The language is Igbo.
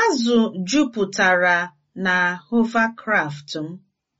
Azụ juputara na hovercraft m